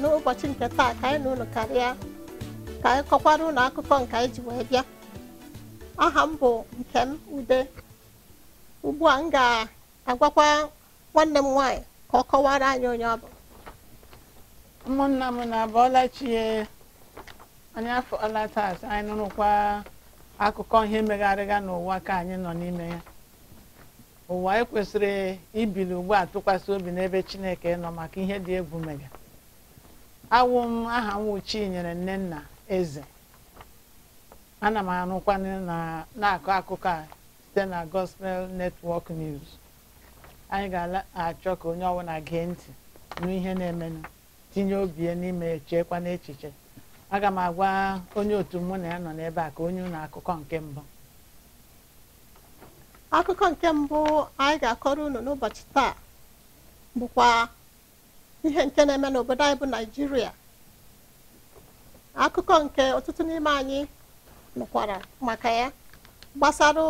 n'ụbọchị nke taa ka anyị na karịa ka anyị kọkwara ụlọ akụkọ nke anyị ji wee bịa aha m bụ Nkem Ude ugbu a m ga-agwakwa nwanne m nwaanyị ka ọ kọwara anyị onye ọ bụ ụmụnna m na-abụọla chie anyị afọla taata anyị nụrụkwa akụkọ ihe megharịga n'ụwa ka anyị nọ n'ime ya ụwa ekwesịrị ibili ugbu a tụkwasị obi n'ebe Chineke nọ maka ihe dị egwu mere awụ m aha nyere nne nna Eze ana m anụkwa na-akọ akụkọ a site na Gospel Network News anyị ga-achọ ka onye ọbụla gee ntị n'ihe na-emenụ tinye obi n'ime echekwa n'echiche aga m agwa onye otu mụ na ya nọ n'ebe a ka onye ụlọ akụkọ nke mbụ akụkọ nke mbụ anyị ga-akọrọ unu n'ụbọchị taa bụkwa ihe nke na-eme n'obodo anyị bụ naijiria akụkọ nke ọtụtụ n'ime anyị nụkwara maka ya gbasara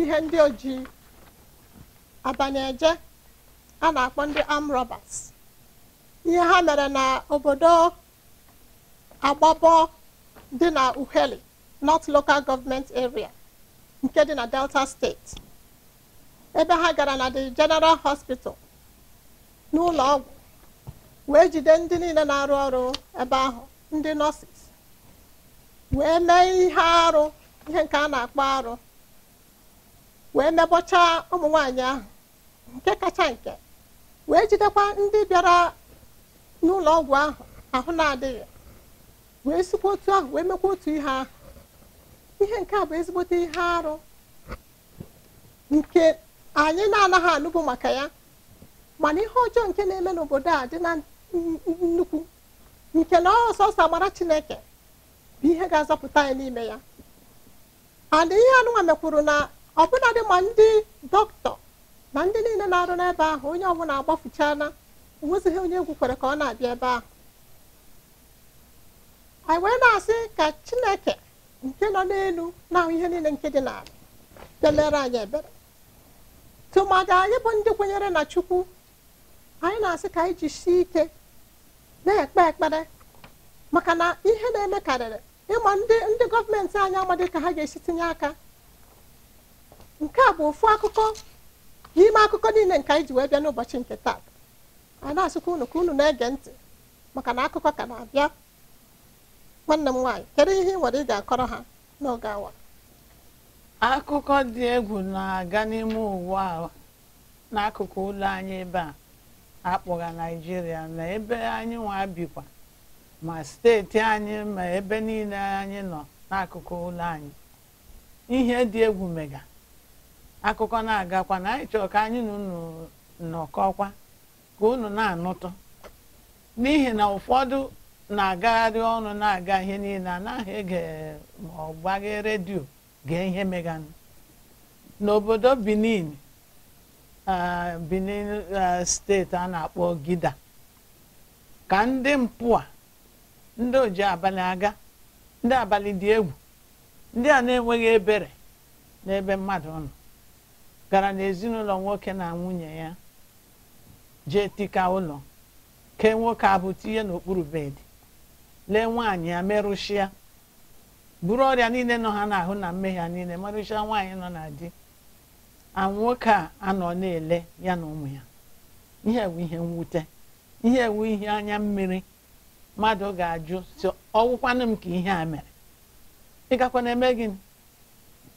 ihe ndị oji abanyeje a na-akpọ ndị am roberts ihe ha mere na obodo agbabọ dị na uheli north local government area nke dị na delta steeti ebe ha gara na the general hospital n'ụlọ ọgwụ wee jide ndị niile na-arụ ọrụ ebe ahụ ndị nọọsis wee mee ihe arụ ihe nke a na-akpọ arụ wee mebọchaa ụmụ nwanyị ahụ nke kacha nke wee jidekwa ndị bịara n'ụlọ ọgwụ ahụ ahụ na-adịghị wee sikwa otu ahụ wee mekwa otu ihe ahụ ihe nke bụ ezigbote ihe arụ nke anyị na-anaghị anụbụ maka ya mana ihe ọjọọ nke na-eme n'obodo a dị na nnukwu nke na ọsọsọ agbara chineke bụ ihe ga-azọpụta anyị n'ime ya ana ihe anụnwa mekwuru na ọbụladị ma ndị dọkịta na ndị niile na-arụ n'ebe ahụ onye ọbụla agbafuchana onwezighị onye egwu kwere ka ọ na-abịa ebe ahụ anyị wee na-asị ka chineke nke nọ n'elu na-ahụ ihe niile nke dị n'ala bịa anyị ebere tụmadị anyị bụ ndị kwenyere na chukwu anyị na-asị ka anyị jisie ike na-ekpe ekpere maka na ihe na-eme karịrị ịma ndị ndị gọọmenti anyị amadị ka ha ga-esi tinye aka nke a bụ ofu akụkọ n'ime akụkọ niile nke anyị ji wee bịa n'ụbọchị nke taa anyị na-asịkwa unu ka unu na-ege ntị maka na akụkọ ka na-abịa nwanne m nwaanyị kedu ihe ị nwere ị ga-akọrọ ha n'oge awa akụkọ dị egwu na-aga n'ime ụwa n'akụkụ ụlọ anyị ebe a akpọga naijiria na ebe anyị nwa bikwa ma steeti anyị ma ebe niile anyị nọ n'akụkụ ụlọ anyị ihe dị egwu mega akụkọ na-agakwa na anyị chọrọ ka anyị na unu nọkọkwa ka unu na-anụtụ n'ihi na ụfọdụ na-agagharị ọnụ na-aga ihe niile anaghị ege ma ọ redio gee ihe meganụ n'obodo Benin Benin steeti a na-akpọ Gida ka ndị mpụ a ndị oji abalị aga ndị abalị dị egwu ndị a na-enweghị ebere n'ebe mmadụ nọ gara n'ezinụlọ nwoke na nwunye ya jee tika ụlọ kee nwoke abụ ihe n'okpuru bedị lee nwaanyị ya buru ọrịa niile nọ ha n'ahụ na mmehie ha niile merụchịa nwaanyị nọ na di anwụ nwoke a anọ na-ele ya na ụmụ ya ihe ewu ihe mwute ihe ewu ihe anya mmiri mmadụ ga-ajụ si ọwụkwanụ m ka ihe a mere ịgakwa na-eme gị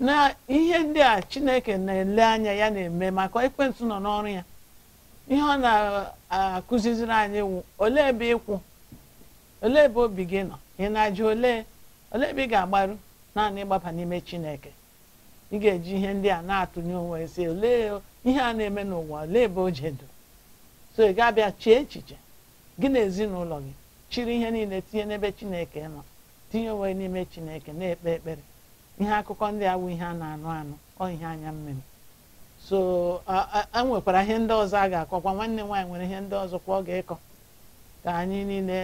na ihe ndị a chineke na-ele anya ya na-eme maka ekwentị nọ n'ọrụ ya ihe ọ na-akụziziri anyị wụ olee ebe ịkwụ olee ebe obi gị nọ ị na-ajụ olee olee ebe ị ga-agbaru naanị ịgbaba n'ime chineke ị ga-eji ihe ndị a na-atụnye onwe si olee ihe a na-eme n'ụwa ole ebe o jedo so ị gabịa abịa chee echiche gị na ezinụlọ gị chiri ihe niile tinye n'ebe chineke nọ tinye onwe n'ime chineke na-ekpe ekpere ihe akụkọ ndị awụ ihe a na-anụ anụ ọ ihe anya mmiri so enwekwara ihe ndị ọzọ a ga-akọkwa nwanne m nwaanyị nwere ihe ndị ọzọ kwa ọ ga ịkọ ka anyị niile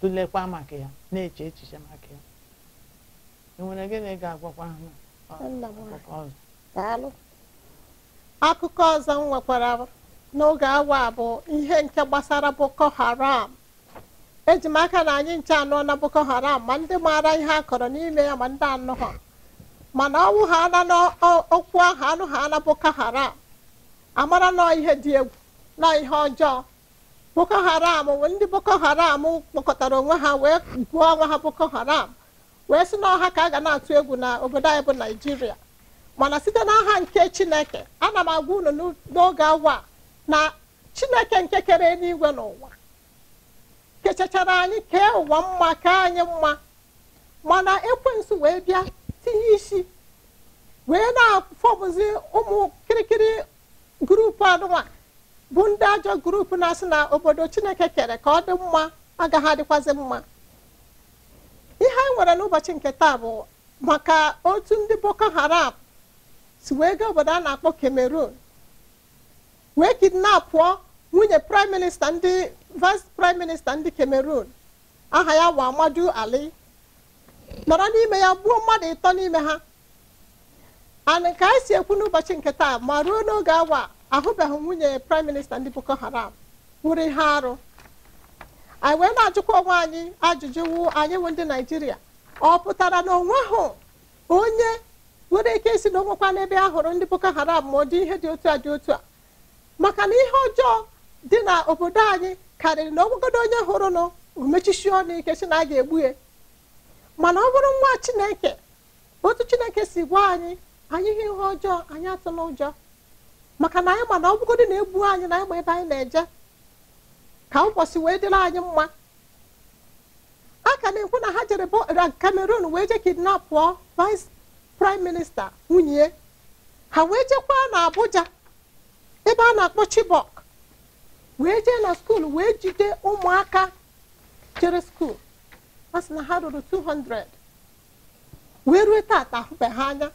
tụlekwa maka ya na-eche echiche maka ya ị nwere gịnị ga-agwakwa ha akụkọ ọzọ m nwekwara n'oge awa bụ ihe nke gbasara boko haram eji m aka na anyị nche anọ na boko haram ma ndị maara ihe a kọrọ n'ime ya ma ndị anụ ha mana ọnwụ ha na n'okwu ahụ anụ ha na boko haram amara nọ ihe dị egwu na ihe ọjọọ boko haram ndị boko haram kpọkọtara onwe ha wee gụọ onwe ha boko haram wee si n'ọha ka a ga na-atụ egwu na obodo anyị bụ naijiria mana site n'aha nke chineke ana m agwa unu n'oge awa na chineke nke kere na n'ụwa kechachara anyị kee ụwa mma kee anyị mma mana ekwensu wee bịa tinye isi wee na-afọbụzi ụmụ kirikiri gurupu anụnwa bụ ndị ajọ gurupu na-asị na obodo chineke kere ka ọ dị mma agaghị adịkwazị mma ihe anyị nwere n'ụbọchị nke taa bụ maka otu ndị boko haram si wee gaa obodo a na-akpọ cameroon wee kidnapụọ nwunye prime minista ndị vice prime minista ndị cameroon aha ya wa amadu ali nọrọ n'ime ya gbuo mmadụ ịtọ n'ime ha ana ka anyị si ekwu n'ụbọchị nke taa ma ruo n'oge awa ahụbeghị nwunye prime minista ndị boko haram nwụrụ ihe arụ anyị wee na-ajụkwa onwe anyị ajụjụ wu anyị wụ ndị naijiria ọ pụtara na onwe ahụ onye nwere ike isi na onwekwa n'ebe a hụrụ ndị boko haram ma ọ dị ihe dị otu a dị otu a maka na ihe ọjọọ dị na obodo anyị karịrị na ọgwụgodo onye hụrụ nụ mechisi ọnụ ike si na a ga-egbu ya mana ọ bụrụ nwa chineke otu chineke si gwa anyị anyị ihe ihe ọjọọ anyị atụla ụjọ maka na anyị mana ọgwụgodo na-egbu anyị na anyị ma ebe anyị na-eje ka ụbọchị wee dịrị anyị mma a ka na-ekwu na ha jere Cameroon wee je kidnap pụọ vice prime minista nwunye ha wee jekwaa na Abuja ebe a na-akpọ Chibok wee jee na skuul wee jide ụmụaka jere skuul ha sị na ha ruru 200 wee rue taata ahụbe ha anya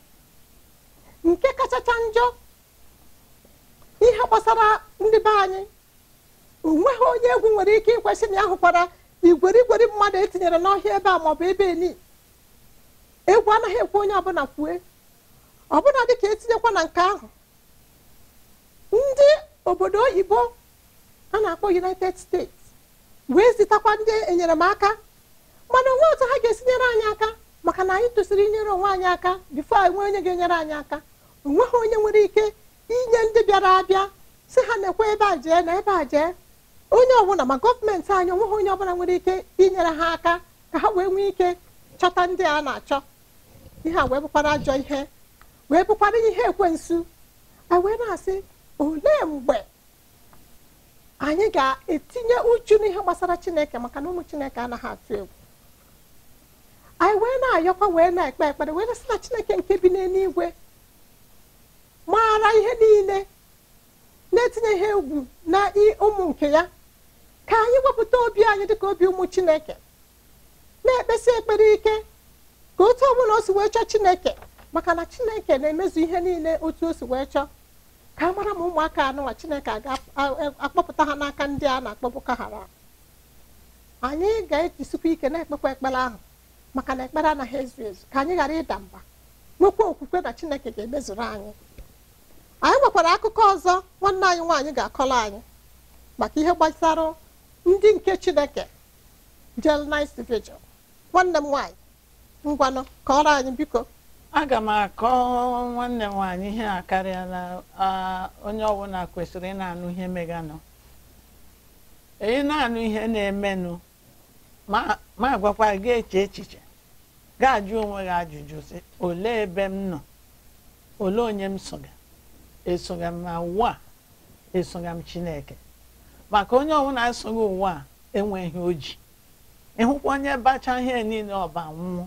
nke kachacha njọ ihe gbasara ndị be anyị onweghị onye egwu nwere ike ikwesị na ya hụkwara igweri mmadụ etinyere n'ọhịa ebe a maọbụ ebe eni egwu anaghị ekwe onye ọbụla kwue ọbụla dịka etinyekwa na nke ahụ ndị obodo oyibo a na-akpọ united states wee zitakwa ndị enyemaka mana onwe otu ha ga nyere anyị aka maka na anyị tụsịrị inyere onwe anyị aka bifo enwe onye ga-enyere anyị aka onweghị onye nwere ike inye ndị bịara abịa si ha na-ekwe ebe a jee na ebe a jee onye ọbụla ma gọọmenti anyị onweghị onye ọbụla nwere ike inyere ha aka ka ha wee nwee ike chọta ndị a na-achọ ihe a wee bụkwara ajọ ihe wee bụkwara ihe ekwensu wee na-asị olee mgbe anyị ga-etinye uchu n'ihe gbasara chineke maka na ụmụ chineke anaghị atụ egwu anyị wee na-ayọkwa wee na-ekpe ekpere wee n'asị na chineke nke bi n'eluigwe maara ihe niile na-etinye ihe egwu na ụmụ nke ya ka anyị wepụta obi anyị dị ka obi ụmụ chineke na-ekpesi ekpere ike ka otu ọbụla o si wee chọọ chineke maka na chineke na-emezu ihe niile otu o si wee chọọ ka a mara ma ụmụaka anụnwa chineke ga-akpọpụta ha n'aka ndị a na-akpọpụka hara anyị ga-ejisikwa ike na-ekpekwa ekpere ahụ maka na ekpere anaghị ezu ezu ka anyị ghara ịda mba nwekwa okwukwe na chineke ga-emezuru anyị anyị nwekwara akụkọ ọzọ nwanne anyị nwaanyị ga-akọrọ anyị maka ihe gbasara ndị nke chineke Jelnais Vigil nwanne m nwaanyị ngwanụ kọrọ anyị biko aga m akọ nwanne m nwaanyị ihe a karịa na onye ọbụla kwesịrị ịna-anụ ihe meganụ ị na-anụ ihe na-emenụ ma gwakwa gị eche echiche ga-ajụ onwe gị ajụjụ sị olee ebe m nọ olee onye m soga esoga m ma ugbu esoga m Chineke maka onye ọbụla esoghị ụwa a enweghị oji ịhụkwa onye bacha ihe niile ọba nwụọ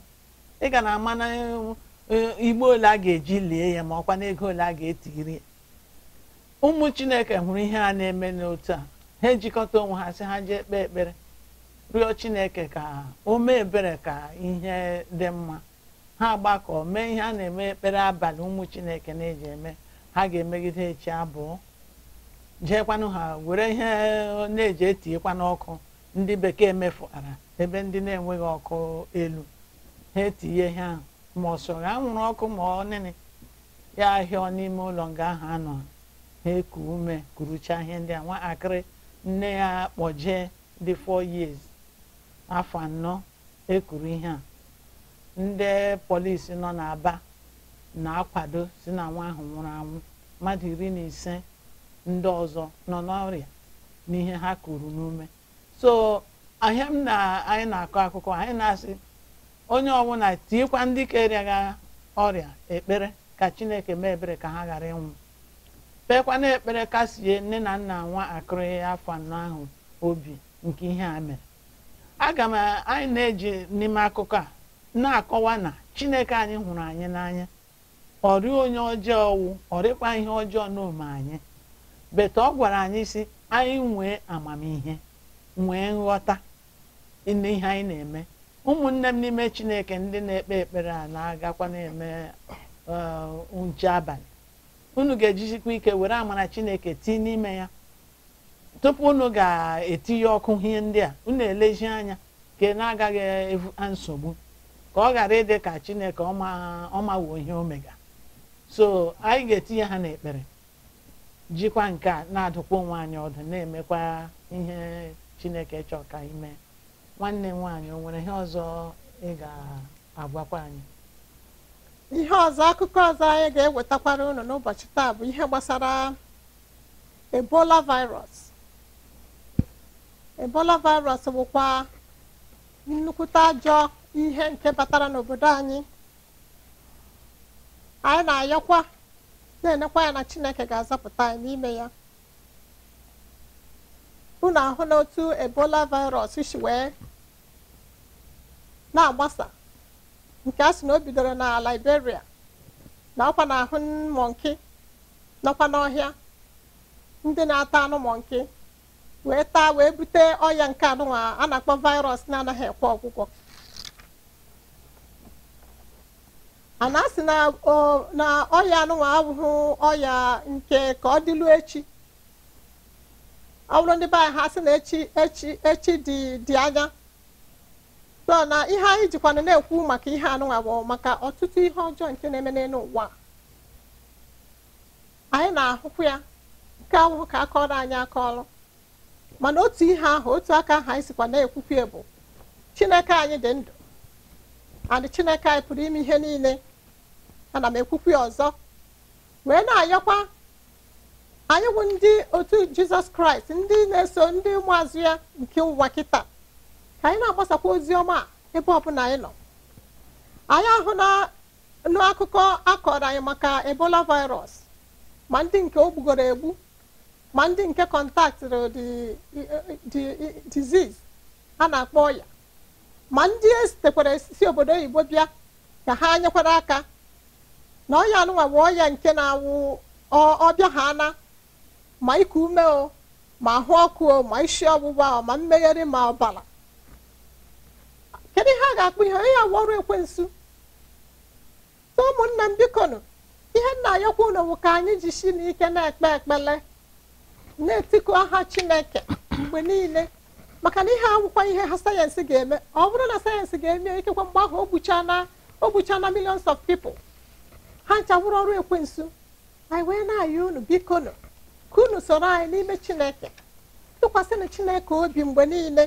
ị ga na ama e, na igbo ole a ga-eji lie ya ma ọkwa na ego ole a ga-etiri ya ụmụ chineke hụrụ ihe a na-eme n'otu a ha ejikọta onwe ha si ha jee kpee ekpere rịọ chineke ka o mee ebere ka ihe dị mma ha gbakọ mee ihe a na-eme ekpere abalị ụmụ chineke na-eji eme ha ga-emegide echi abụọ jeekwanụ ha were ihe na-eji etinyekwa ọkụ ndị bekee mefuara ebe ndị na-enweghị ọkụ elu ha etinye ihe ahụ ma ọ sọrọ nwụrụ ọkụ ma ọ nịnị ya ahịa n'ime ụlọ nga ahụ anọ ha eku ume kuruchaa ihe ndị a akịrị nne ya kpọjee dị fọ years afọ anọ ekuru ihe a ndị polisi nọ n'Aba na-akwado si na nwa ahụ nwụrụ anwụ mmadụ iri na ise ndị ọzọ nọ n'ọrịa n'ihe ha kuru n'ume so ahịa m na anyị na-akọ akụkọ anyị na-asị onye ọbụla tiekwa ndị kerịaga ọrịa ekpere ka chineke mee ebere ka ha ghara ịnwụ na ekpere kasie nne na nna nwa akụrịghị afọ anọ ahụ obi nke ihe a mere aga m anyị na-eji n'ime akụkọ a na-akọwa na chineke anyị hụrụ anyị n'anya ọrịa onye ọjọọ wụ ọrịkwa ihe ọjọọ n'ome anyị beta ọ gwara anyị si anyị nwee amamihe nwee nghọta n'ihe anyị na-eme ụmụnne m n'ime chineke ndị na-ekpe ekpere a na-agakwa na-eme uh, nche abalị unu ga-ejizikwa ike were amara chineke tii n'ime ya tupu unu ga-etinye ọkụ ihe ndị a unu elezi anya ka na-agaghị ebuka nsogbu ka ọ ghara ịdị ka chineke ọmawuo ihe omega so anyị ga-etinye ha n'ekpere jikwa nke a na-adụkwa onwe ọdụ na-emekwa ihe chineke chọọ ka ime nwanne nwaanyị o nwere ihe ọzọ ị ga-agwakwa anyị ihe ọzọ akụkọ ọzọ anyị ga-ewetakwara unu n'ụbọchị taa bụ ihe gbasara ebola virus ebola virus bụkwa nnukwute ajọ ihe nke batara n'obodo anyị anyị na-ayọkwa na-enekwa ya na chineke ga azapụta ya n'ime ya unu ahụ n'otu ebola virus si wee na-agbasa nke a sị na o bidoro na liberia na ọkwa na ahụ mọnki nọkwa n'ọhịa ndị na-ata anụ mọnki wee taa wee bute ọya nke anụnwa a na-akpọ virus na-anaghị ekwe ọgwụgwọ a na-asị na ọya anụnwa abụghị ọya nke ka ọ dịlu echi ọ bụrụ ndị be anyị ha sị na echi echi echi dị dị anya so na ihe anyị jikwana na-ekwu maka ihe anụnwa bụ maka ọtụtụ ihe ọjọọ nke na-eme n'elu ụwa anyị na-ahụkwu ya nke ahụhụ ka akọrọ anyị akọrọ mana otu ihe ahụ otu aka ahụ anyị sikwa na-ekwukwe bụ chineke anyị dị ndụ adị chineke anyị pụrụ ime ihe niile ana m ekwukwu ya ọzọ wee na-ayọkwa anyị bụ ndị otu jizọs kraịst ndị na-eso ndị ụmụazụ ya nke ụwa kịta ka anyị na-agbasakwa ozi ọma ebe ọbụla anyị nọ anyị ahụ n'akụkọ akọrọ anyị maka ebola virus ma ndị nke o gbugoro egbu ma ndị nke kọntaktịrị diziz a na-akpọ ọya ma ndị esitekwara si obodo oyibo bịa ka ha nyekwara aka na ya anụnwa bụ ya nke na-awụ ọbịa ha ana ma iku ume o ma ahụ ọkụ o ma isi ọgbụgba o ma mmegheri ma ọbara kedu ihe a ga-akpụ ihe onye awụ ọrụ ekwensu so ụmụnne m ihe nna ayọkwa unu bụ ka anyị ji n'ike na-ekpe ekpele na etikọ aha chineke mgbe niile maka na ihe awụkwa ihe ha sayensị ga-eme ọ bụrụ na sayensị ga-eme ikekwe mgbe ahụ o gbuchana millions of people ha nchagburu ọrụ ekwensu anyị wee na-ayọ unu biko nụ ka unu soro anyị n'ime chineke tụkwasịnụ chineke obi mgbe niile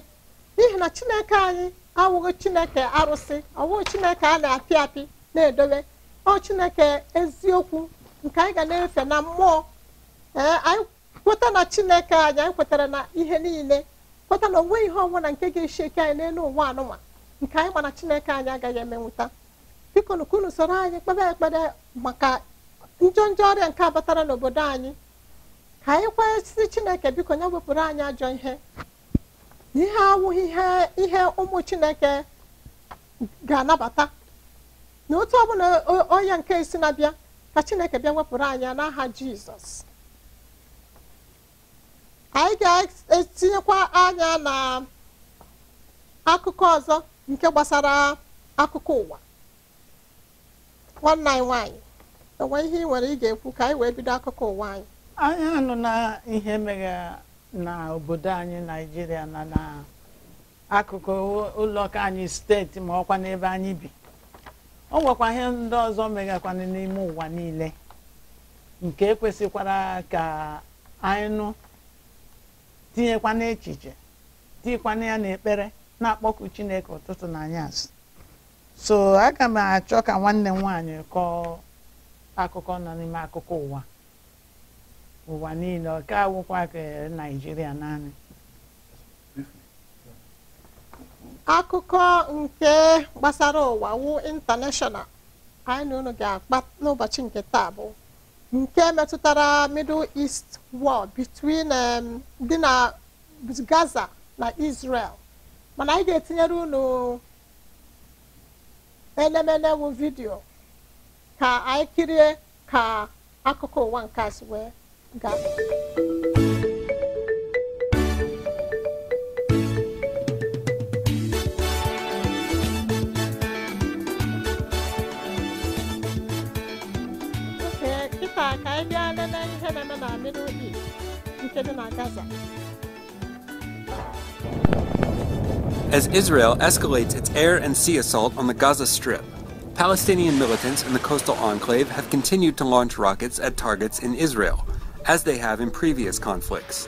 n'ihi na chineke anyị awụghị chineke arụsị ọwụghị chineke a na-apị apị na-edobe ọ chineke eziokwu nke anyị ga na-efe na mmụọ ee anyị kweta na chineke anyị anyị kwetara na ihe niile kweta na onweghị ihe ọbụla nke ga-eshi eke anyị n'elu ụwa anụma nke anyị mana chineke anyị agaghị emenwụta biko nukunu soro anyị kpebe ekpere maka njọ njọ ọrịa nke batara n'obodo anyị ka anyị kwesịrị chineke biko nye wepụrụ anyị ajọ ihe ihe awụghị ihe ụmụ chineke ga-anabata na otu ọbụla onye nke isi na-abịa ka chineke bịa wepụrụ anyị n'aha jizọs anyị ga-etinyekwa anya na akụkọ ọzọ nke gbasara akụkọ ụwa nwanne anyị nwaanyị enwe ihe ị nwere ị ga-ekwu ka anyị wee bido akụkọ ụwa anyị anyị anụ na ihe mere na obodo anyị naijiria na na akụkụ ụlọụka anyị steeti ma ọkwa n'ebe anyị bi o nwekwa ihe ndị ọzọ megakwana n'ime ụwa niile nke ekwesịkwara ka anyị nụ tinyekwana echiche tinyekwana ya n'ekpere na-akpọku chineke ụtụtụ na anyasị so aga m achọ ka nwanne m nwaanyị kọọ akụkọ nọ n'ime akụkọ ụwa ụwa niile ọ ka awụkwa naijiria naanị akụkọ nke gbasara ụwa wu international anyị na unu ga-akpa n'ụbọchị nke taa bụ nke metụtara middle east war between um, dị na gaza na israel mana anyị ga-etinyere unu enemene wụ vidiyo ka anyị kirie ka akụkọ ụwa nke a ga wee gaa ka anyị bịa lele ihe na-eme na Middle East nke dị na Gaza as Israel escalates its air and sea assault on the Gaza Strip. Palestinian militants in the coastal enclave have continued to launch rockets at targets in Israel, as they have in previous conflicts.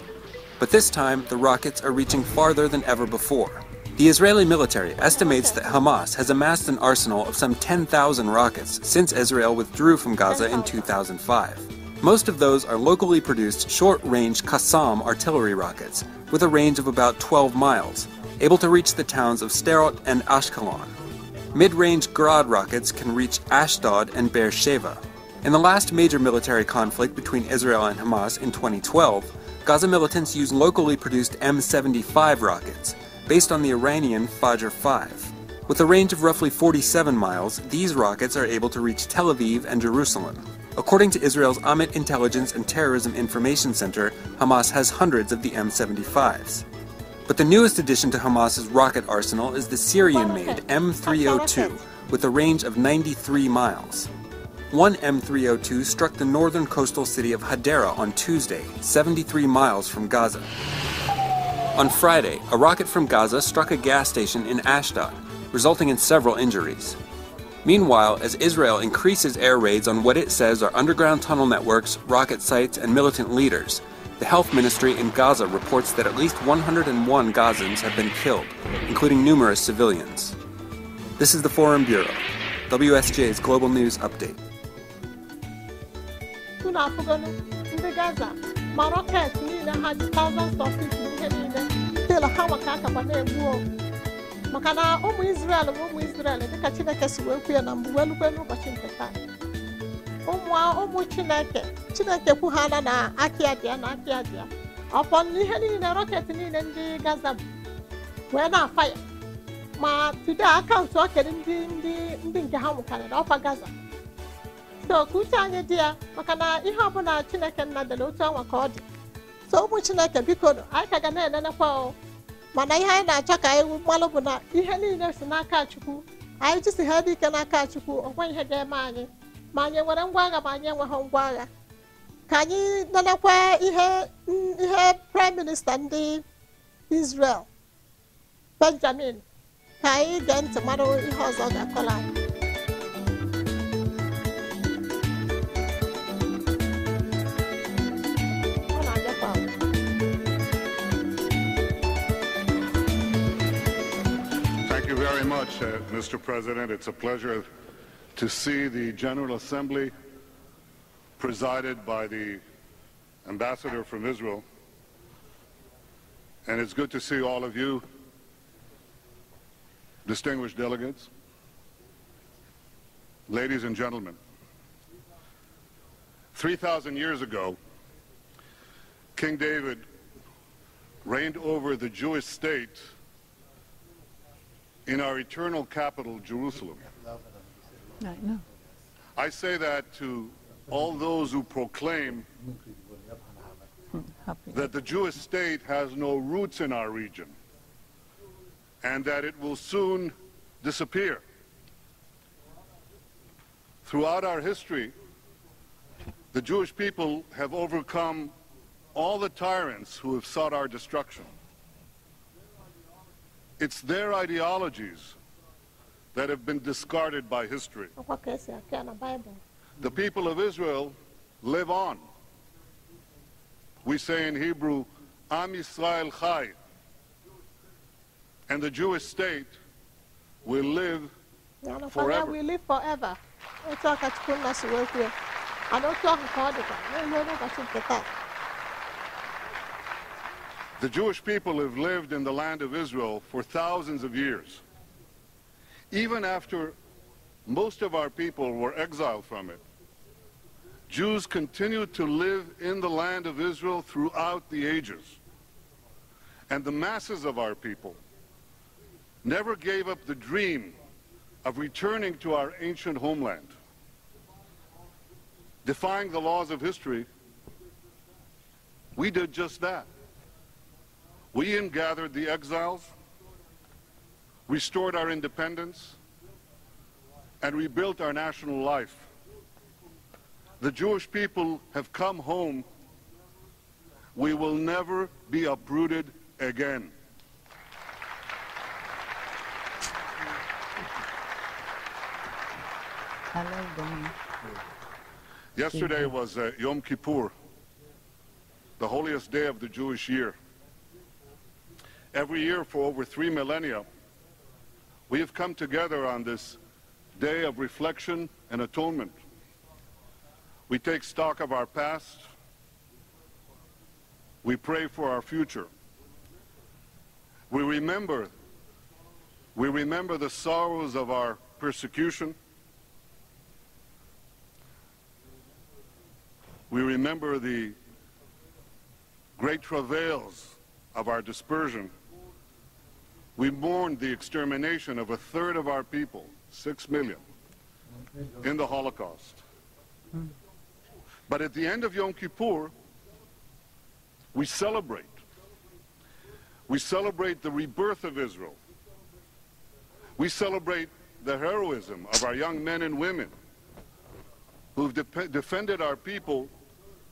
But this time, the rockets are reaching farther than ever before. The Israeli military estimates that Hamas has amassed an arsenal of some 10,000 rockets since Israel withdrew from Gaza in 2005. Most of those are locally produced short range Qassam artillery rockets, with a range of about 12 miles, able to reach the towns of Sterot and Ashkelon. Mid-range Grad rockets can reach Ashdod and Beersheba. In the last major military conflict between Israel and Hamas in 2012, Gaza militants used locally produced M75 rockets, based on the Iranian Fajr 5. With a range of roughly 47 miles, these rockets are able to reach Tel Aviv and Jerusalem. According to Israel's Amit Intelligence and Terrorism Information Center, Hamas has hundreds of the M75s. But the newest addition to Hamas's rocket arsenal is the Syrian-made M302, with a range of 93 miles. One M302 struck the northern coastal city of Hadera on Tuesday, 73 miles from Gaza. On Friday, a rocket from Gaza struck a gas station in Ashdod, resulting in several injuries. Meanwhile, as Israel increases air raids on what it says are underground tunnel networks, rocket sites, and militant leaders, the health ministry in Gaza reports that at least 101 Gazans have been killed, including numerous civilians. This is the Foreign Bureau, WSJ's Global News Update. maka na ụmụ Israel bụ ụmụ Israel Chineke si wee kwu ya na n'ụbọchị nke taa ụmụ chineke chineke kwughara na aka ya dị ya na aka ya dị ya ọpọ ihe niile rọketị niile ndị gaza bụ wee na-afa ya ma tude akaụntụ okere ndị ndị nke ha nwụkarịrị ọkwa gaza so ka uche anyị dị ya maka na ihe ọbụla chineke nna dịla otu ọnwa ka ọ dị so ụmụ chineke biko anyị ka ga na-enenekwa mana ihe anyị na-achọ ka anyị mmalụ bụ na ihe niile si n'aka chukwu anyị jisi ha dị ike n'aka chukwu ọ nweghị ihe ga-eme anyị nwere ma anyị enweghị ka anyị lelekwa ihe ihe prime minista ndị Israel Benjamin ka anyị gee ntị ihe ozo ọ Thank you very much, uh, Mr. President. It's a pleasure to see the General Assembly presided by the ambassador from Israel. And it's good to see all of you, distinguished delegates, ladies and gentlemen. 3,000 years ago, King David reigned over the Jewish state in our eternal capital, Jerusalem. I know. I say that to all those who proclaim hmm. that the Jewish state has no roots in our region and that it will soon disappear. Throughout our history, the Jewish people have overcome all the tyrants who have sought our destruction. It's their ideologies that have been discarded by history. The people of Israel live on. We say in Hebrew, Am Yisrael Chai. And the Jewish state will live forever. We live forever. The Jewish people have lived in the land of Israel for thousands of years even after most of our people were exiled from it, Jews continued to live in the land of Israel throughout the ages. And the masses of our people never gave up the dream of returning to our ancient homeland. Defying the laws of history, we did just that. We ingathered the exiles, restored our independence, and rebuilt our national life. The Jewish people have come home. We will never be uprooted again. Hello, Yesterday was uh, Yom Kippur, the holiest day of the Jewish year. Every year for over three millennia, we have come together on this day of reflection and atonement. We take stock of our past. We pray for our future. We remember, we remember the sorrows of our persecution. We remember the great travails of our dispersion we mourned the extermination of a third of our people, six million, in the Holocaust. But at the end of Yom Kippur, we celebrate. We celebrate the rebirth of Israel. We celebrate the heroism of our young men and women who've de defended our people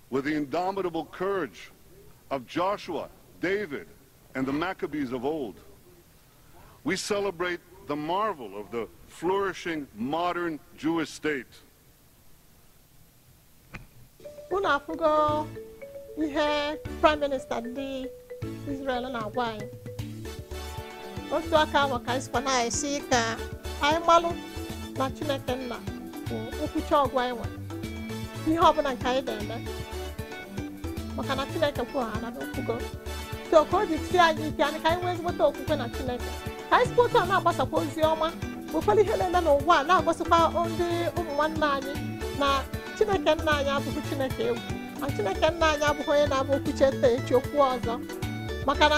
with the indomitable courage of Joshua, David, and the Maccabees of old. We celebrate the marvel of the flourishing modern Jewish state. unafugo ihe prime minister ndị israel and agwa otu aka ahụ ka anyị na anyị ka anyị gbalụ na chineke nna bụ nkwuchi ọgwụ anyị ihe ọbụla nke maka na chineke so na chineke ka anyị sikwa otu a na-agbasakwa ozi ọma ụfọdụ ihe na-eme n'ụwa a na-agosịkwa ndị ụmụ nwanne anyị na chineke nna anyị abụghị chineke egwu na chineke nna anyị abụghị onye na-abụ okwuche ete echi okwu ọzọ maka na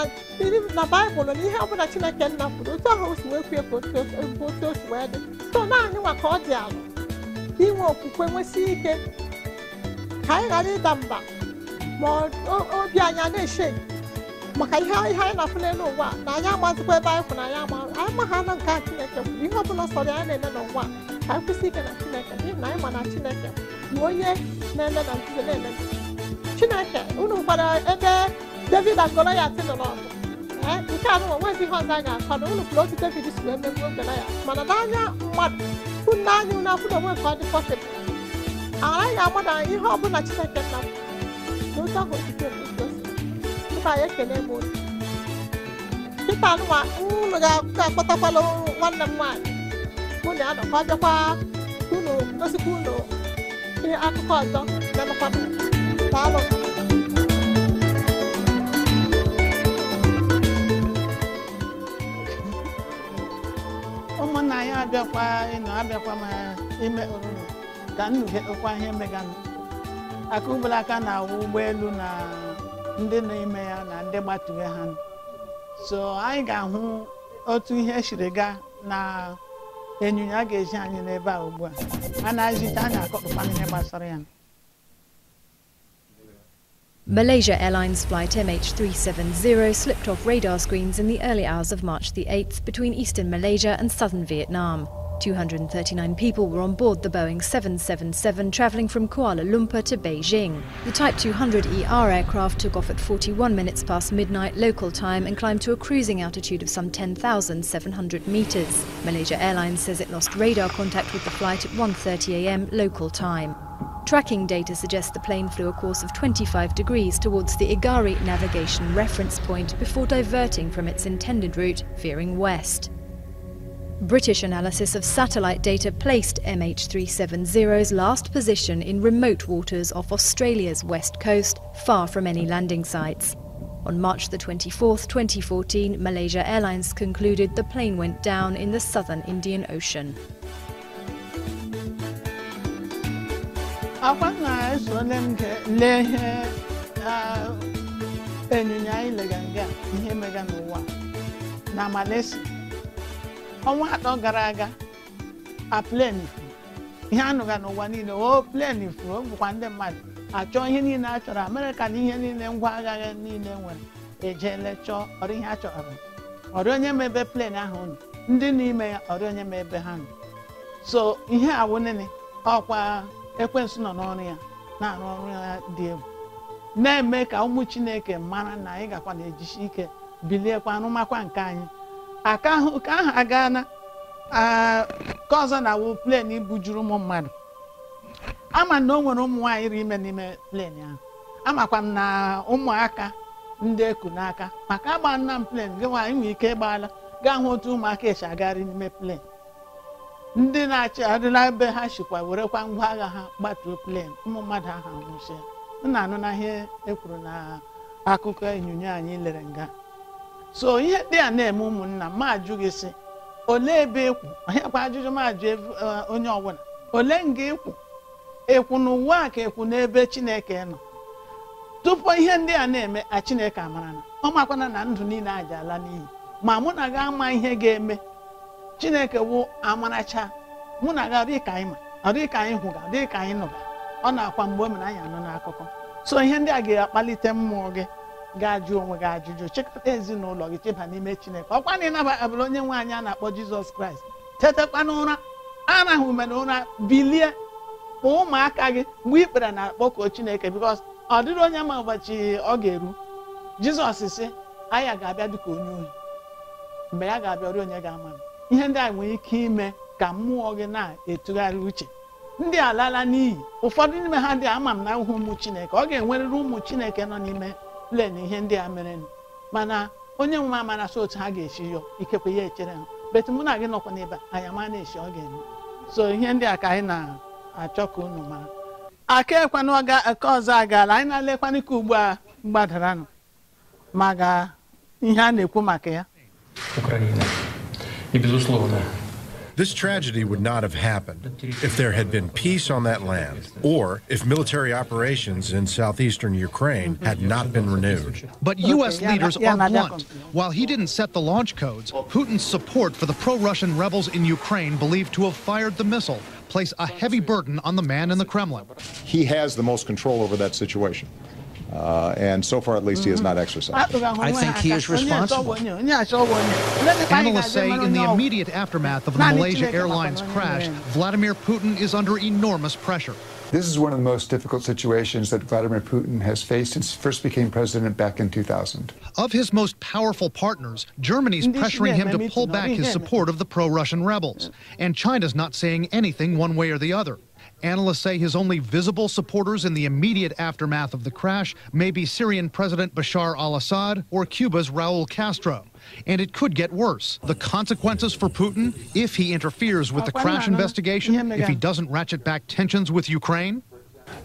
na baịbụl na ihe ọbụla chineke nna kwuru otu ahụ si wee kwuo bụ otu o si wee dị so naanị nwa ka ọ dị ala inwe okwukwe nwesị ike ka anyị ghara ịda mba ma obi anyị na eche maka ihe ihe anyị na-afụle n'ụwa na anyị amazikwa ebe anyị kwụ na anyị ama anyị ma nke a chineke bụ ihe ọbụla sọrọ ya na-eme n'ụwa ka anyị kwụsị ike na chineke n'ihi na anyị ma na chineke bụ onye na-eme na nzuzo na-eme chineke unu ebe david agọrọ ya nke a nụwa nwezi ihe ọzọ anyị unu kwuru otu david si wee megbuo ya mana n'anya mmadụ unu na onwe nke ọ dị ama na ihe ọbụla chineke na ụtọ parece que ele é ta ga-akpọtakwala nwanne m nwaanyị ụlọ anọ ka ọ bịakwa unu ihe akụkọ ọzọ na-anọkwa daalụ ụmụnna ya abịakwa ịnọ abịakwa ma ime oruru ka nnukwu ihe meganụ akụbụlaka na ụgbọelu na ndị na-eme ya na ndị ha so anyị ga-ahụ otu ihe siri gaa na a ga-eji anyị n'ebe a ugbu a a na akoputa ihe gbasara ya Malaysia Airlines flight MH370 slipped off radar screens in the early hours of March the 8th between eastern Malaysia and southern Vietnam. 239 people were on board the Boeing 777 travelling from Kuala Lumpur to Beijing. The Type 200ER aircraft took off at 41 minutes past midnight local time and climbed to a cruising altitude of some 10,700 metres. Malaysia Airlines says it lost radar contact with the flight at 1.30 a.m. local time. Tracking data suggests the plane flew a course of 25 degrees towards the Igari navigation reference point before diverting from its intended route, veering west. British analysis of satellite data placed MH370's last position in remote waters off Australia's west coast, far from any landing sites. On March the 24th, 2014, Malaysia Airlines concluded the plane went down in the southern Indian Ocean. ọnwa atọ gara aga a plen furu ihe anụga n'ụwa niile o plen furu o bụkwa ndị mmadụ achọ ihe niile a chọrọ amerịka na ihe niile ngwa agha niile nwere ejeele chọọ ọrụ ihe a chọrọ onye ma ebe plen ahụ nọ ndị n'ime ya ọrị onye ma ebe ha nọ so ihe awụnene ọkwa ekwensu nọ n'ọrụ ya na-arụ ọrụ ya dị egwu na-eme ka ụmụ chineke mara na anyị gakwa na-ejisi ike biliekwa arụmakwa nke anyị aka ahụ aga na ka na awụ plen bujuru ụmụ mmadụ ama na o nwere ụmụ nwaanyị iri ime n'ime plen ahụ amakwa m na ụmụaka ndị eku n'aka maka agba nna m plen gị nwaanyị nwere ike ịgbaala gaa hụ otu ụmụaka esi agagharị n'ime plen ndị na achị adịla ebe ha shikwa werekwa ngwa agha ha gbatuo plen ụmụ mmadụ ahụ anwụchie m na-anụ na ihe ekwuru na akụkọ enyonyo anyị lere nga so ihe ndị a na-eme ụmụnna m ajụ gị sị olee ebe ịkwụ e onyekwa ajụjụ m ajụ e, onye ọbụla ole nga ekwu ekwu na a ka ekwu n'ebe chineke nọ tupu ihe ndị a na-eme a chineke amara na ọ makwana na ndụ niile ajala ala n'iyi ma mụ na gị ama ihe ga-eme chineke wụ amaracha mụ na gị ka anyị ma ka anyị hụga ọdịka anyị nụga ọ na-akwa mgbe o mere anyị anụ n'akụkọ so ihe ndị a ga-akpalite mmụọ gị ga-ajụ onwe gị ajụjụ chịkọta ezinụlọ gị cheba n'ime chineke ọkwa na ịnaba abụrụ onye nwe anyị a na-akpọ jizọs kraịst tetakwa n'ụra arahụ ume na ụra bilie ma ụmụaka gị mgbe ikpere na-akpọkuo chineke bikos ọ dịrị onye ma ụbọchị ọ ga-eru jizọs si aya ga-abịa dịka onye ohi mgbe ya ga-abịa onye ga-ama m ihe ndị a nwere ike ime ka mmụọ gị na etugharị uche ndị alala n'iyi ụfọdụ n'ime ha dị ama m na ahụhụ ụmụ chineke ọ ga-enwerịrị ụmụ chineke nọ n'ime len ihe ndị a mere mana onye nwe amarasị otu ha ga-esi yọ ikekwe ya echere ha bet mụ na gị nọkwa n'ebe anyị ama na echi ọ ga-eme so ihe ndị a ka anyị na-achọ ka unu mara aka ekwana aka ọzọ agaala anyị na-alekwana ka ugbu a gbadaranụ maka ihe a na-ekwu maka ya This tragedy would not have happened if there had been peace on that land or if military operations in southeastern Ukraine had not been renewed. But U.S. leaders are blunt. While he didn't set the launch codes, Putin's support for the pro Russian rebels in Ukraine, believed to have fired the missile, place a heavy burden on the man in the Kremlin. He has the most control over that situation. Uh, and so far, at least, he has not mm-hmm. exercised. I think he is responsible. Analysts say in the immediate aftermath of the Malaysia Airlines crash, Vladimir Putin is under enormous pressure. This is one of the most difficult situations that Vladimir Putin has faced since he first became president back in 2000. Of his most powerful partners, Germany's pressuring him to pull back his support of the pro Russian rebels. And China's not saying anything one way or the other. Analysts say his only visible supporters in the immediate aftermath of the crash may be Syrian President Bashar al Assad or Cuba's Raul Castro. And it could get worse. The consequences for Putin, if he interferes with the crash investigation, if he doesn't ratchet back tensions with Ukraine,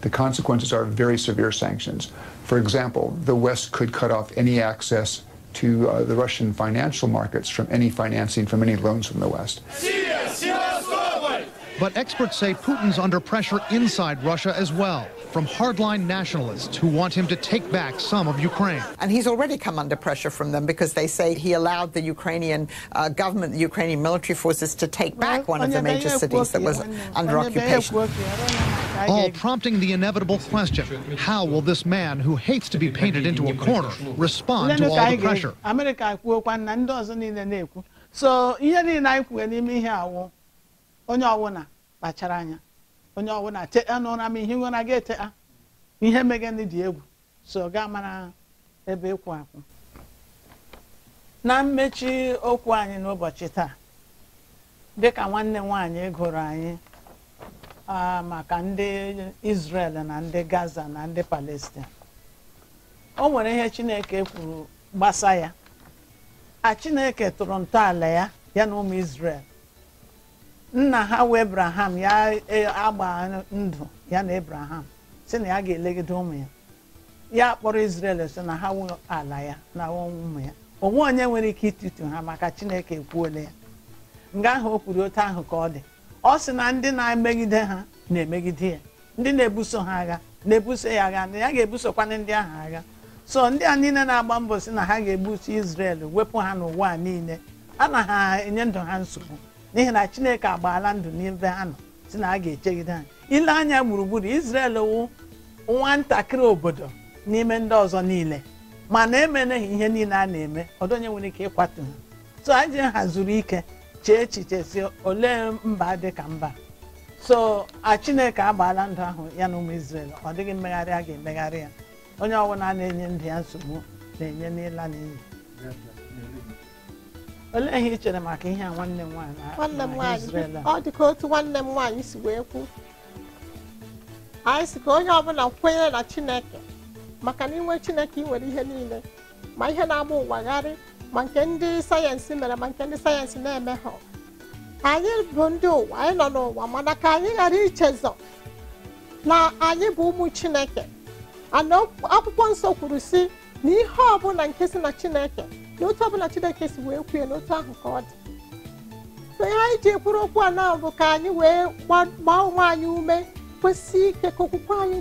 the consequences are very severe sanctions. For example, the West could cut off any access to uh, the Russian financial markets from any financing, from any loans from the West. But experts say Putin's under pressure inside Russia as well, from hardline nationalists who want him to take back some of Ukraine. And he's already come under pressure from them because they say he allowed the Ukrainian uh, government, the Ukrainian military forces, to take back one of the major cities that was under occupation. All prompting the inevitable question, how will this man who hates to be painted into a corner respond to all the pressure? So, kpachara anya onye ọbụla te n'ụra m ihe nwere ga ete ihe ndị dị egwu so gaa mara ebe ịkwụ akwụ na mmechi okwu anyị n'ụbọchị taa dịka nwanne m nwaanyị gụrụ anyị maka ndị Israel na ndị Gaza na ndị palestin o nwere ihe Chineke kwuru gbasa ya a Chineke tụrụ ntọala ya ya na ụmụ isrel nna ha wee ebraham ya e, agba ndụ ya na ebraham si na ya ga-elegide ụmụ ya ya kpọrọ isrel so na ha nwe ala ya na ụmụ ya onwe onye nwere ike ịtụtụ ha maka chineke ekwuole ya nga ahụ o kwuru otu ahụ ka ọ dị ọ sị na ndị na-emegide ha na-emegide ya ndị na-ebuso ha agha na-ebuso ya agha na ya ga-ebusokwana ndị ahụ agha so ndị a niile na-agba mbọ si na ha ga-ebuso Izrel wepụ ha n'ụwa niile a na ha enye ndụ ha nsogbu n'ihi na chineke agbaala ndụ n'ebe ha nọ si na a ga-echegide anyị ile anya gburugburu Israel wụ nwatakịrị obodo n'ime ndị ọzọ niile mana emeneghị ihe niile a na-eme ọdụ onye nwere ike ịkwatu ha so anyị hazuru ike chee echiche si olee mba dị ka mba so a chineke agbaala ndụ ahụ ya na ụmụ Israel ọ dịghị mmegharị a ga-emegharị ya onye ọbụla na-enye ndụ ya nsogbu na-enye n'ịla n'iyi olee ihe ị chere maka ihe a nwanne m nwaanyị ọ dị ka otu nwanne m nwaanyị si wee kwu anyị si ka onye ọbụla kwenyere na chineke maka na inwe chineke ị nwere ihe niile ma ihe na-agba ụwagharị ma nke ndị sayensị mere ma nke ndị sayensị na-eme ha anyị bụ ndị ụwa anyị nọ n'ụwa mana ka anyị ghara ichezọ na anyị bụ ụmụ chineke ana akwụkwọ nsọ kwuru si na ihe ọbụla nke si na chineke na otu ọbụla chineke si wee kwue na otu ahụ ka ọ dị so ihe anyị ji ekwuru okwu a na bụ ka anyị wee gbaa onwe anyị ume kwesị ike ka okwukwe anyị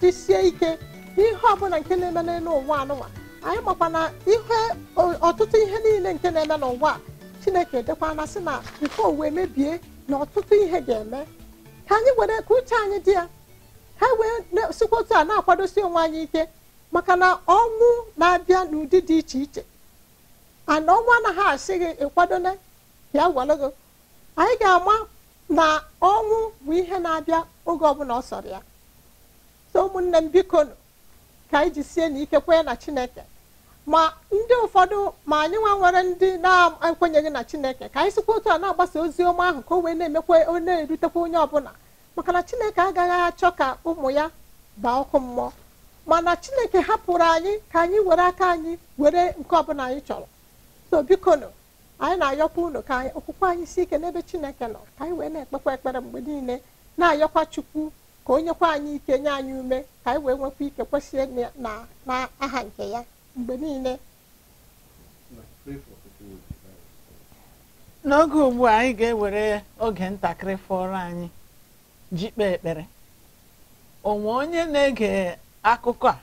jisie ike n'ihe ọbụla nke na-eme n'elu ụwa anụnwa anyị makwa na ihe ọtụtụ ihe niile nke na-eme n'ụwa chineke dekwana sị na nke uwe mebie na ọtụtụ ihe ga-eme ka anyị were ka uche anyị dị ya ha wee sikwa otu a na-akwadosi onwe anyị ike maka na ọnwụ na-abịa n'ụdị dị iche iche ana ọnwụ anaghị asị gị ịkwadone bịa gwalụ gị anyị ga-ama na ọnwụ bụ ihe na-abịa oge ọbụla ọ sọrọ ya so ụmụnne m biko ka anyị jisie na ike kwenye na chineke ma ndị ụfọdụ ma anyị nwa nwere ndị na-ekwenyeghị na chineke ka anyị sikwa otu a na-agbasa ozi ọma ahụ ka o wee na-emekwa na-erutekwa onye ọbụla maka na chineke agaghị achọ ka ụmụ ya baa ọkụ mmụọ mana chineke hapụrụ anyị ka anyị were aka anyị were nke ọbụla anyị chọrọ so bikono anyị na-ayọkwa ụlọ ka okwukwe anyị si ike n'ebe chineke nọ ka anyị wee na-ekpekwa ekpere mgbe niile na-ayọkwa chukwu ka onyekwa anyị ike nye anyị ume ka anyị wee nwekwa ike kwesịrị na aha nke ya mgbe niile n'oge ugbu a anyị ga-ewere oge ntakịrị fọrọ anyị ji kpee ekpere onwe onye na-ege akụkọ a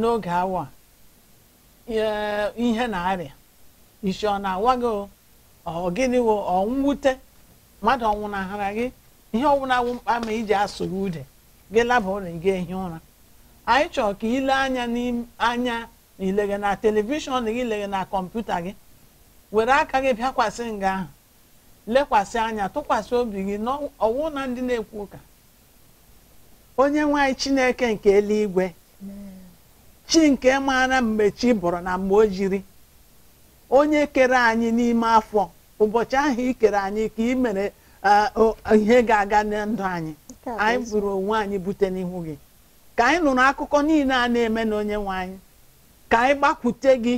n'oge awa ihe na-arịa isi ọ na-awa gị ọ gịnị wo ọ nwute mmadụ ọnwụnahara gị ihe wụ mkpa ma iji asụ gị ude gị laba ụlọ gị ehi ụra anyị chọrọ ka ile anya n'anya na ileghe na telivishọn gị ileghe na kọmputa gị were aka gị bịakwasị nga ahụ lekwasị anya tụkwasị obi gị ọwụ na ndị na-ekwu ụka onye nwanyị chineke nke eluigwe chi nke maara mgbe chi bụrụ na mgbe o jiri onye kere anyị n'ime afọ ụbọchị ahụ ikere anyị ka ị mere ihe ga-aga na ndụ anyị anyị bụrụ onwe anyị bute n'ihu gị ka anyị nụrụ akụkọ niile a na-eme n'onye nwanyị, ka anyị gbakwute gị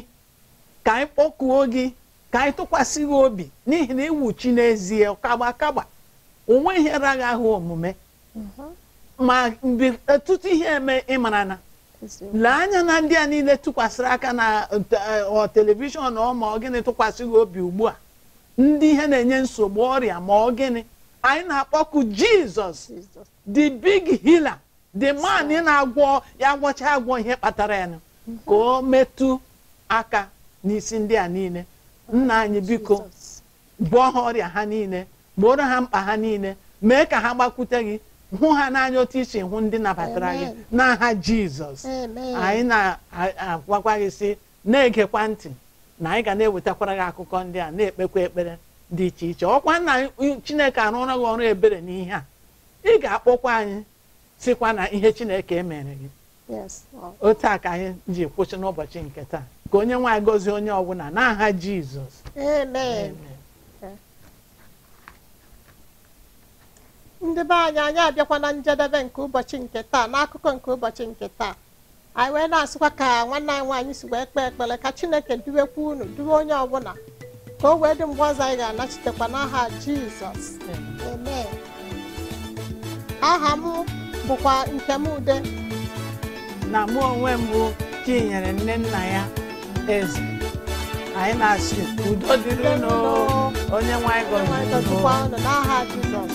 ka anyị kpọkuo gị ka anyị tụkwasị gị obi n'ihi na iwu chi n'ezie kagba kagba onwe ihe raghị ahụ omume mhm. ma mgbe ọtụtụ ihe eme ịmara na lee anya na ndị a niile tụkwasịrị aka na eh, eh, telivishọn ọma ma ọ gịnị obi ugbu a ndị ihe na-enye nsogbu ọrịa ma ọ gịnị anyị na-akpọku jizọs the big healer the man na-agwọ ya gwọcha agwọ ihe kpatara ya mhm. ka o metụ aka n'isi ndị a niile nna anyị biko gwọọ ha ọrịa ha niile gboro ha mkpa ha niile mee ka ha gbakwute gị hụ ha n'anya otu isi hụ ndị nabatara gị n'aha jizọs anyị na-agwakwa gị sị na-egekwa ntị na anyị ga na-ewetakwara gị akụkọ ndị a na-ekpekwa ekpere dị iche iche ọkwa nna chineke arụọla gị ọrụ ebere n'ihe a ị ga-akpọkwa anyị sikwa na ihe chineke emere gị otu a ka anyị ji kwụsị n'ụbọchị nke taa ka onye nwaanyị gọzie onye ọbụla n'aha jizọs ndị be anyị anyị abịakwa na njedebe nke ụbọchị nke taa n'akụkọ nke ụbọchị nke taa anyị wee na-asịkwa ka nwanne anyị nwaanyị si wee kpee ekpere ka chineke duwekwa unu duwe onye ọbụla ka o wee dị mgbe ọzọ anyị ga-anachitekwa n'aha jizọs amen aha m bụkwa nke m ude na mụ onwe m bụ chinyere nne nna ya eze anyị na-asị udo dịrị unu onye nwaanyị gọziri n'aha jizọs